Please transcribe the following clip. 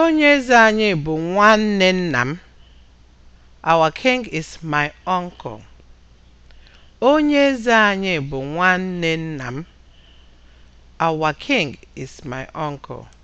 Onye eze anyị bụ nwanne nna m. Our king is my uncle. Onye eze anyị bụ nwanne nna m. Our king is my uncle.